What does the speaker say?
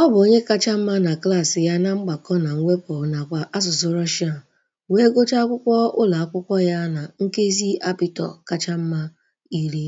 Ọ bụ onye kacha mma na klaasị ya na mgbakọ na mwepụ nakwa asụsụ Russian wee gụchaa akwụkwọ ụlọ akwụkwọ ya na nkezi apịtọ kacha mma iri.